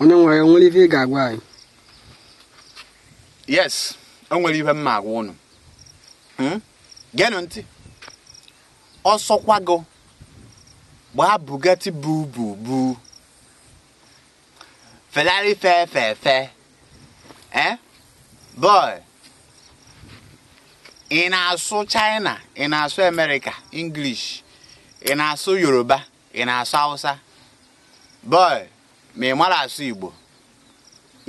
onye nwere anyị nwere ife ị ga-agwa anyị yes o nwere mma agwa ụnụ genụ ntị ọsọkwago gbaa bugatti bu bu bu fe fe fe eh? boy ị na-asụ China ị na-asụ America English ị na-asụ Yoruba ị na-asụ Hausa boy ma ị mara asụ Igbo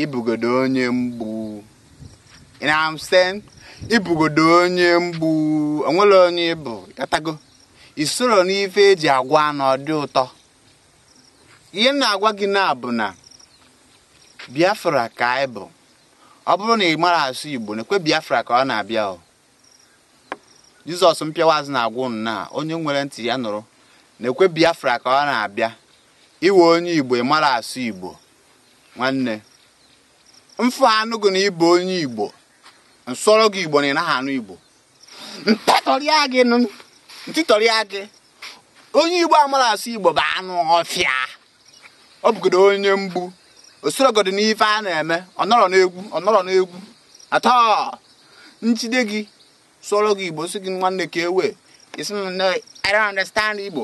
ibugodo onye mgbu ị ibugodo onye mgbu onwere onye bụ katago isoro n'ife eji agwa na dị ụtọ ihe na-agwa gị na bụ na Biafra ka anyị bụ ọ bụrụ na ị mara asụ Igbo na ekwe Biafra ka ọ na-abịa o Jizọs mpịawa azụ na-agwụ na onye nwere ntị ya nụrụ na ekwe Biafra ka ọ na-abịa iwe onye igbo ị mara asụ igbo nwanne mfe anụ gị na ịbụ onye igbo nsọrọ gị igbo na ị naghị anụ igbo ntatọrịa gị ntịtọrịa gị onye igbo amara asụ igbo bụ anụ ọfịa ọ bụgodo onye mgbu osorogodo n'ife a na-eme ọ ọnọrọ n'egwu ọnọrọ n'egwu atọ njide gị sụọrọ gị igbo si gị nwanne ka ewe isi na I understand igbo